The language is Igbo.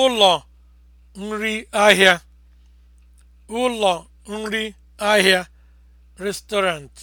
ụlọ nri ahịa ụlọ nri ahịa restaurant